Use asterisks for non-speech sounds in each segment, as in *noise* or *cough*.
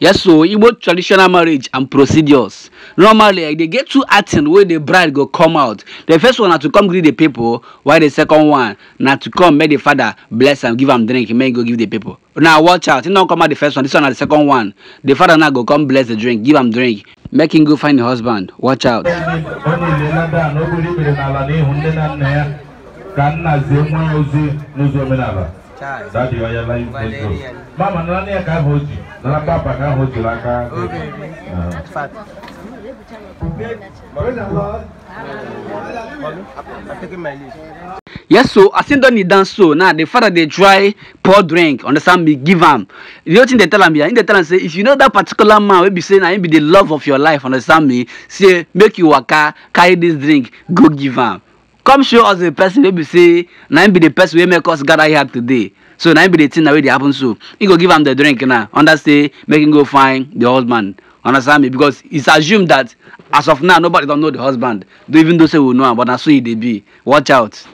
yes so igbo traditional marriage and procedures normally like, they get two acting wey the bride go come out the first one na to come greet the people while the second one na to come make the father bless am give am drink make he go give the people now watch out he don come out the first one this one na the second one the father now go come bless the drink give am drink make him go find the husband watch out. ka nna zie nwa ozi n'ụzọ omenala saa deɛ ɔyɛ la yi mama nana ne yɛ ka ho ji nana papa ka ho ji la ka oh, Yes, so I in done dance so now the father they try pour drink, understand me, give am. The other thing they tell am here, they tell am say if you know that particular man will be saying I be the love of your life, understand me, say make you waka, carry this drink, go give am come show us the person wey be say na him be the person wey make us gather here today so na him be the thing na wey dey happen so he go give am the drink now under say make him go find the husband understand me because it's assumed that as of now nobody don know the husband though even though say we know am but na so he dey be watch out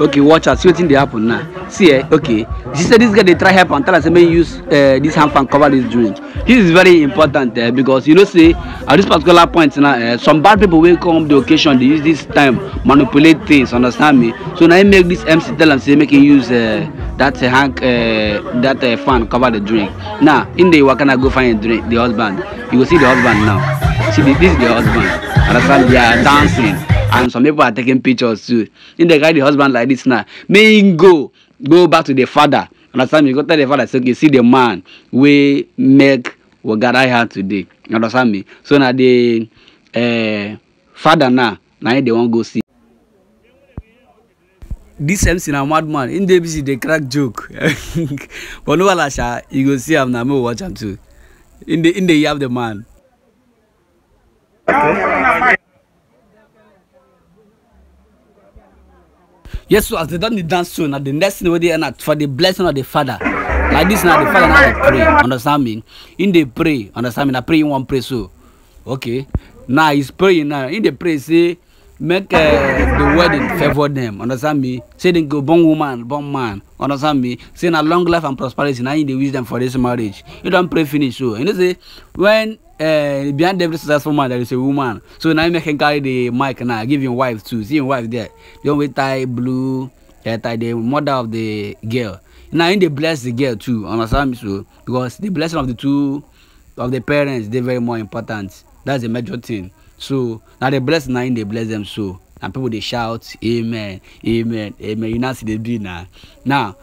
okay watch out see wetin dey happen now see eh okay She see say this guy dey try help am tell am say make he use uh, this hand fan cover this drink this is very important eh, because you know say at this particular point now eh, some bad people wey come the occasion dey use this time manipulate things understand me so na him make this mc tell am say make him use eh, that eh, hand eh, that eh, fan cover the drink now nah, him dey waka na go find drink, the husband you go see the husband now see the, this is the husband understand they are dancing and some people are taking pictures too him dey carry the husband like this now make him go go back to the father understand me go tell the father say okay see the man wey make we gather here today you understand me so na the uh, father now na him dey wan go see. dis mc na madman him dey busy dey crack joke *laughs* but no wahala sha you go see am na me watch am too him dey him dey yab the man. Okay. yes so as they don dey dance so na the next thing wey dey end na for the blessing of the father like this now the father now pray understand me In dey pray understand me na pray in wan pray so okay now he's praying now In dey pray say make uh, the wedding favour them understand me say dem go born woman born man understand me say na long life and prosperity na him dey wish dem for this marriage he don pray finish so you know say when uh, behind every successful man there is a woman so na him make him carry the mic now give him wife too see him wife there the one wey tie blue hair uh, tie the mother of the girl Now in the bless the girl too, understand me so because the blessing of the two of the parents they very more important. That's the major thing. So now they bless now in they bless them so. And people they shout, Amen, Amen, Amen. You know see they do now. Now,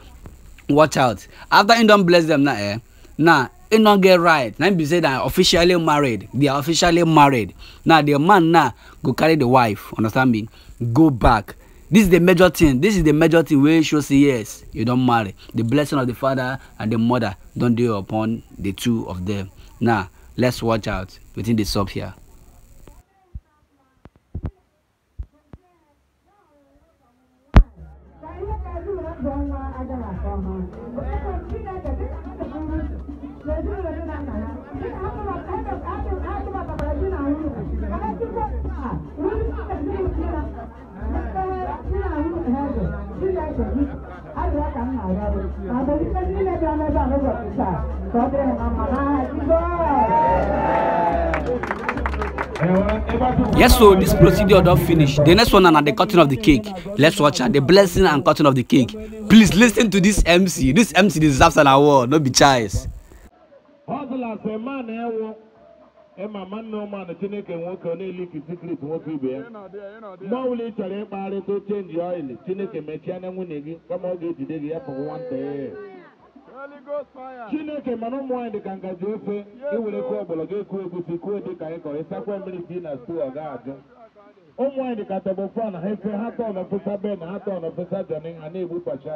watch out. After you don't bless them now, eh? Now e no get right na be say na officially married they are officially married now the man now go carry the wife understand me go back this is the major thing this is the major thing wey show say yes you don marry the blessing of the father and the mother don dey upon the two of them now let's watch out wetin dey sup here. Yes, so this procedure don't finish. The next one and the cutting of the cake. Let's watch her. The blessing and cutting of the cake. Please listen to this MC. This MC deserves an award. No be choice. ịma nwanne ụmanụ chineke nwoke ọ na-eliki sikrit nwoke ibe ya oh, mgbe ọ bụla ị chọrọ ịkpagharịta chenji ọil chineke mechie na nwunye gị kama ọ ga-ejide gị ya pụrụ nwata ya chineke mana ụmụ nwanyị dị ka ngaji ofe iwere kụọ ọgbọlọgọ ekuo egusi kuo dị ka ịkọ ịsakwa mmiri si na stu ọ ga-ajụ ụmụ nwanyị dị ka ha efe ha tọn ofesa ben ha tọn ofesa jọni ha na-egbupacha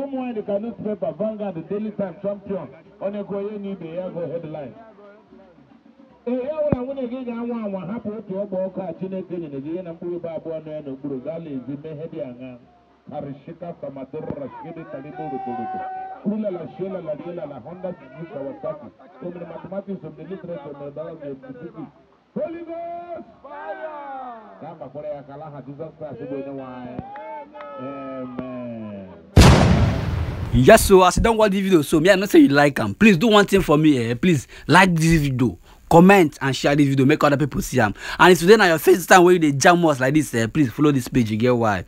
ụmụ nwanyị dị ka newspaper Vanguard Daily Time Champion onye gụọ onye na ibe ya gụọ headline ọbụla nwunye gị ga-anwa anwa hapụ otu ọgba ọkụ a chineke nyere gị ihe na mkpụrụ ibe abụọ na ya n'okpuru gala ezi mehe dị aṅa arishika samatorora shiri kalibo rotoroto ulala shelala rielala honda suzuki kawasaki omere mathematics of the literature mere dara the suzuki ka a gbakwara ya ka alaha jizọs kraịst bụ onye nwe yes so as you don watch this video so me i know say you like am please do one thing for me eh please like this video comment and share this video make other people see am and if today na your first time wey you dey jam us like this, eh please follow this page you get why.